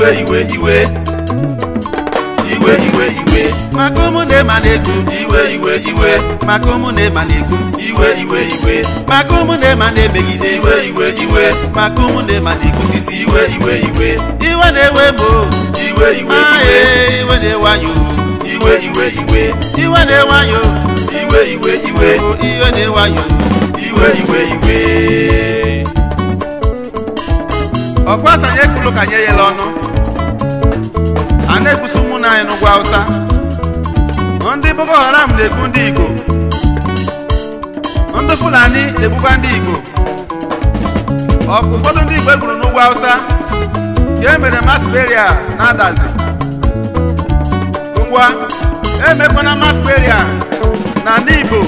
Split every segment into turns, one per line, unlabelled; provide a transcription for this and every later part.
iwe iwe iwe iwe iwe iwe maka ụmụ na na-egwu iwe iwe iwe maka ụmụ na na-egwu iwe iwe iwe maka ụmụ na na-emegide iwe iwe iwe maka ụmụ na-ema na-ekwusisi iwe iwe iwe iwe na-ewe m ah, eh, iwe iwe iwe iwe na-ewe anyị iwe iwe iwe iwe na-ewe anyị iwe iwe iwe iwe na-ewe anyị iwe iwe iwe ọkwasa nye kulu ka nye ya ọnụ a na-ekpusi ụmụnna anyị n'ugwu Hausa ndị Boko Haram na-egbu ndị Igbo ndị Fulani na-egbukwa ndị Igbo ụfọdụ ndị Igbo egburu n'ugwu Hausa ka e mere mass na-adazi ngwa emekwana mass na ndị Igbo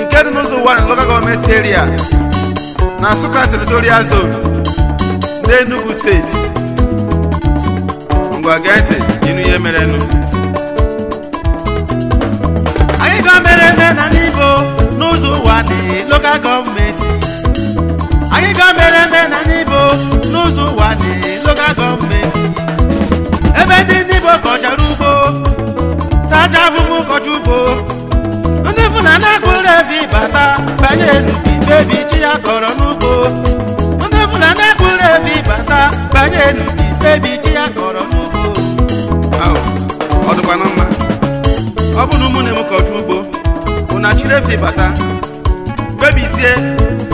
nke dị n'ụzọ ụwa na local gọọmenti area na Nsukka senatorial zone n'Enugu steeti ngwa gee ntị ihe anyị ga mere eme n'ala Igbo n'ụzọ ụwa dị lokal gọọmenti anyị ga ebe ndị ndị Igbo ugbo tacha afụfụ kọcha ugbo ndị na akpụrụ efi bata banye n'ubi bebi chi ya kọrọ n'ụ mmiri efi bata mebizie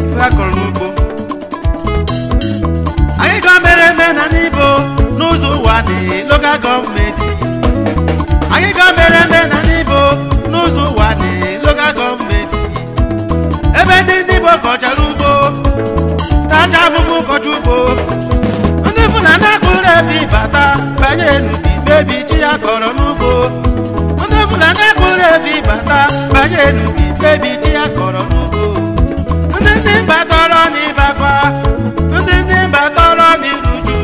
ife ha kọrọ n'ugbo anyị ga eme na n'ibo n'ụzọ ụwa dị local gọọmenti anyị ga eme na n'ibo n'ụzọ ụwa dị gọọmenti ebe ndị ndị igbo kọchara ugbo tacha afụfụ kọcha ugbo ndị fụna na-akpụrụ bata banye n'ubi evi bata ji ndị ndị batọrọ n'ịbakwa ndị ndị batọrọ n'iruju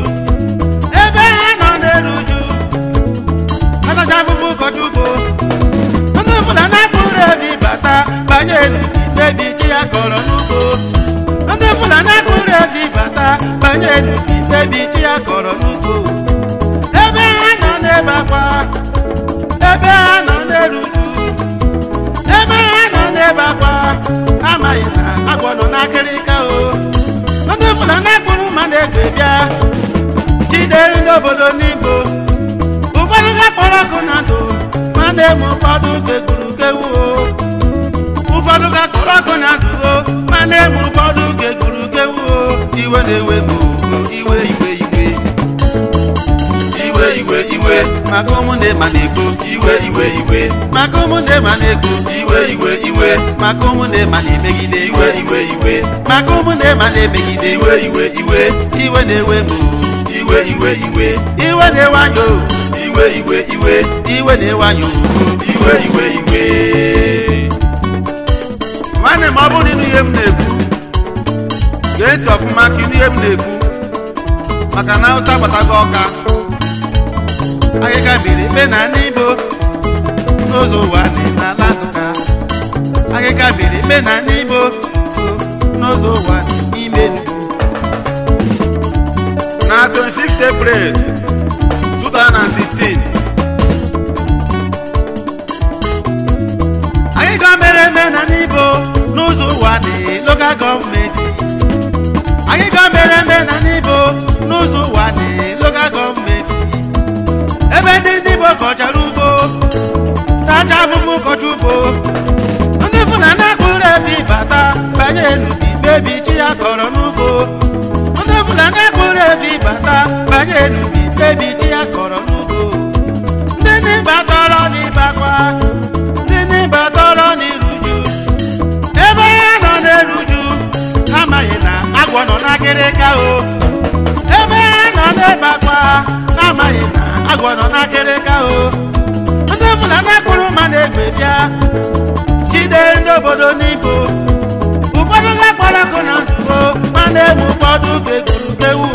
ebe ha nọ na-akụrụ evi bata banye n'ubi mkpebi ji ya kọrọ n'ugbo ndị na-akụrụ evi bata banye n'ubi mkpebi ji ya ebe ha nọ n'ebe akwa amaghị na agwọ nọ n'akịrịka o ndị bụla na-ekpuru mmadụ ego bịa jide ndị obodo n'igbo ụfọdụ ga kpọrọ ọkụ na ndụ ma na-eme ụfọdụ ka kewu kpọrọ ọkụ na ndụ ma na-eme ụfọdụ keguru kewu iwe na-ewe iwe iwe maka ụmụnne ma na-ekpo iwe iwe iwe maka ụmụnne ma na-ekpo iwe iwe iwe maka ụmụnne ma na-emegide iwe iwe iwe maka ụmụnne ma na-emegide iwe iwe iwe iwe na-ewe m iwe iwe iwe iwe na-ewe anyị iwe iwe iwe iwe na-ewe anyị iwe iwe iwe nwanne m ọ bụrụ na ịnụ ihe m na-ekwu ga-eti ọfụma ka ịnụ ihe m na-ekwu maka na agbata agbatago ọka agịga biri ikpe na ndị Igbo ụwa niile ala Nsụka akịka biri ikpe na ndị Igbo ụwa ụwa n'ime na 26 April 2016 akịka mere eme na ndị Igbo ụwa dị local gọọmenti akịka mere eme na ndị Igbo n'ụzọ ụwa dị ojúbo ndị Fulani efi bata banye n'ubi bebi ya kọrọ n'ugbo ndị Fulani ekpuru efi bata banye n'ubi bebi ji ya kọrọ n'ugbo ndị ebe ya nọ na agwọ nọ na o ebe ya nọ na amaghị na agwọ nọ na ka o Naija jide ndị obodo n'ibo ụfọdụ ga-akpọrọ ọkụ na ndubo ma na-egbu ụfọdụ ga-egburugewu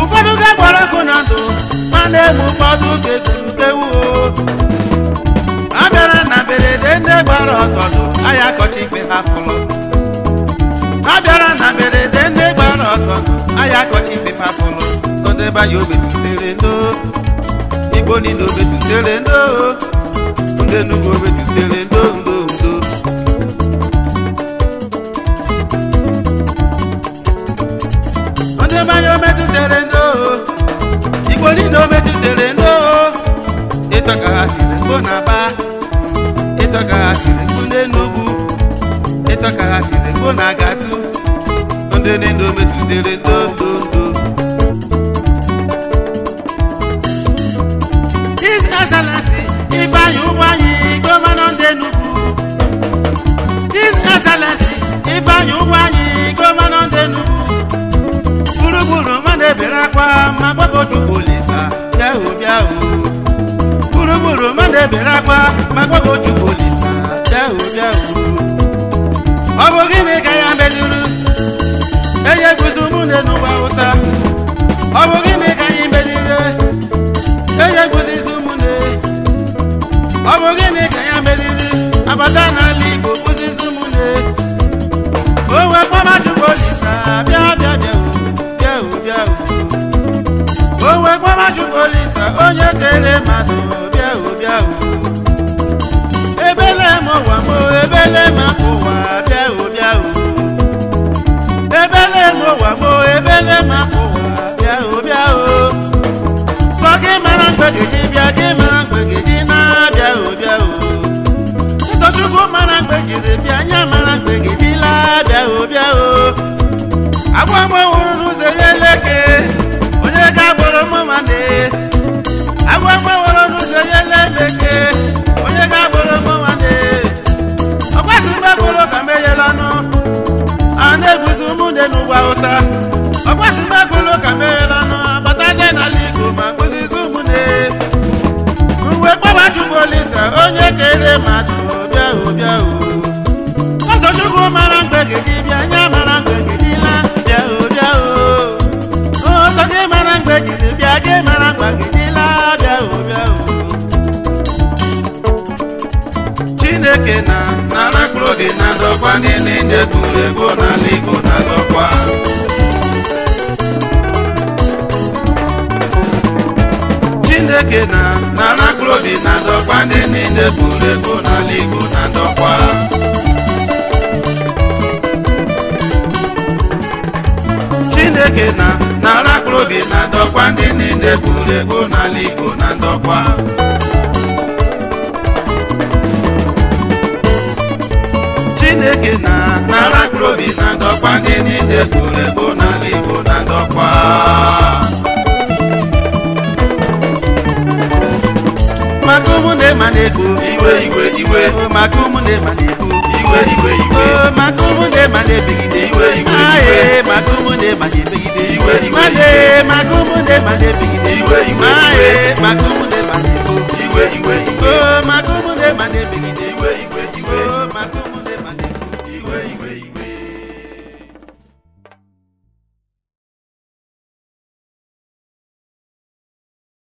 ụfọdụ ga-akpọrọ ọkụ na ndụ ma na-egbu ụfọdụ ga na mberede ndị gbara ọsọ ndụ ahịa akọcha ife ha fọrọ a na mberede ndị gbara ọsọ ndụ ahịa ife ha obetutere igbo niile obetutere ndị Enugu metutere ndo ndo ndo ndị Ebonyi metutere ndo Igbo niile o metutere ndo ịtọ ka ha siri mkpụ na aba ha siri mkpụ n'Enugu ịtọ ha ndị niile o bịa gburugburu mmadụ ebere akwa maka Ogorchukwu Olisa bịa bịa ọ bụ gịnị ka ya enye guzo ụmụnne n'ụwa Hausa ọ bụ gịnị ka anyị enye guzo izu e. ọ ya abata n'ala Igbo George Olisa onye kere masị ụbịa ụbịa uo ebele m ụwa m ebele m ụwa bịa ụbịa uo ebele m ụwa m ebele m ụwa bịa ụbịa uo sọ gị mara mgbegeji bịa gị mara mgbegeji na-abịa ụbịa uo Chukwu mara mgbejiri bịa anya mara mgbegidila bịa ụbịa o agwa mgbe nwụrụ n'ụzọ ya Hausa ọkwasị mgbagolo ka meghela nụ abataze n'ala Igbo ma kụzizi ụmụnne uwe kpaba chukwu onye kere mmadụ bịa obịa o ọzọ chukwu mara mgbe gị Chideke na nara akpụrụobi na ndọkwa ndị niile gburu Ego n'ala Igbo na ndọkwa Chineke na nara akpụrụobi na ndọkwa ndị niile gburu egwu n'ala Igbo na ndọkwa maka ụmụnne ma na-ekwu iwe iwe iwe maka ụmụnne ma na-ekwu iwe iwe iwe maka ụmụnne ma na-ebigide iwe iwe iwe maka ụmụnne ma na-ekwu magumu my madebi